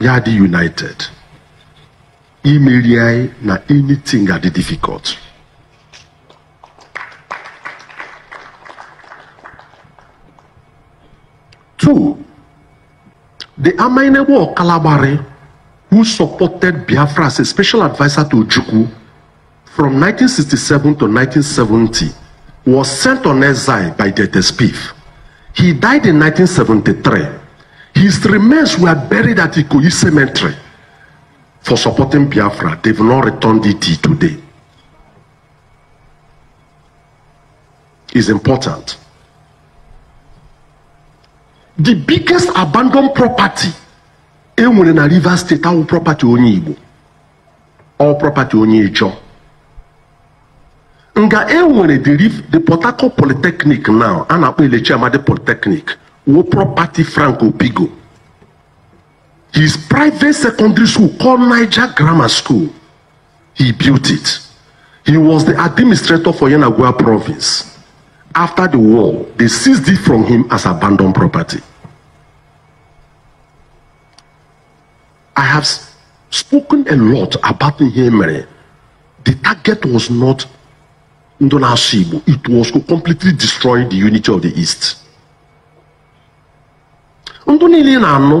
yadi united imeri na anything adị difficult two the Amainegbu Kalabari, who supported Biafra as a special advisor to Ojukwu from 1967 to 1970 was sent on exile by the SPIF. He died in 1973 His remains were buried at Ikoyi Cemetery for supporting Biafra. They've not returned it today. Is important. The biggest abandoned property enwere na Rivers State our property onye Igbo our property onye Ijaw nga enwere the Port Harcourt Polytechnic now a na-akpọ Elechiamadi Polytechnic wo property Franco Bigo. His private secondary school called Niger Grammar School. He built it. He was the administrator for Yanagua province. After the war, they seized it from him as abandoned property. I have spoken a lot about Nhemere. The target was not Ndona It was to completely destroy the unity of the East. ndụ niile ị na-anụ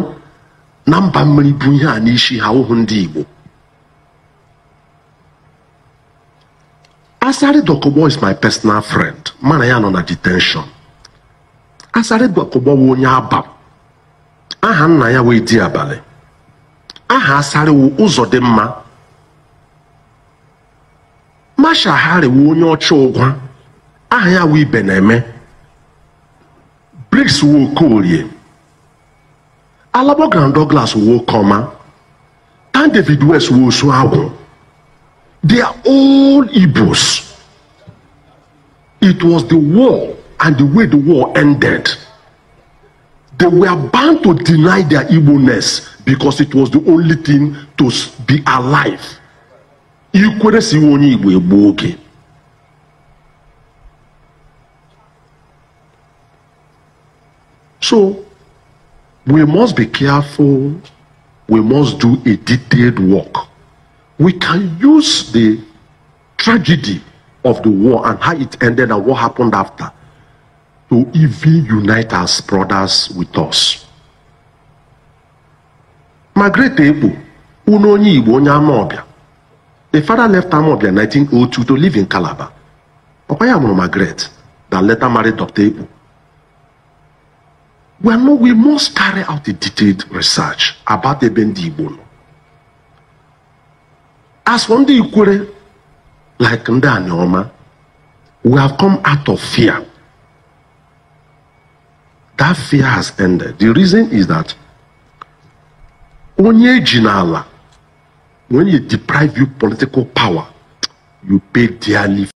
na mba mmiri bụ ihe a n'isi ha ụhụ ndị Igbo Asari Dokubo is my personal friend mana ya nọ na detention Asari Dokubo wụ onye aba aha nna ya wee di abalị aha Asari wụ ụzọ dị mma Masha wụ onye ọcha ụgwa aha ya wụ ibe na-eme Briggs wụ Alabogran Douglas wo Koma, and David West wo Suawo. They are all Igbos. It was the war and the way the war ended. They were bound to deny their Igbo-ness because it was the only thing to be alive. Ikwere si onye Igbo egbu oge. So we must be careful we must do a detailed work we can use the tragedy of the war and how it ended and what happened after to even unite as brothers with us. Margaret Ebo, unu onye Igbo onye Amawbia, the father left Amawbia in 1902 to live in Calabar. Papa ya mụrụ Margaret that later married Dr. Ebo. Well, no, we must carry out a detailed research about the Ebendi Igbo. As from the Ikwere, like Ndani Oma, we have come out of fear. That fear has ended. The reason is that onye jinala, when you deprive you political power, you pay dearly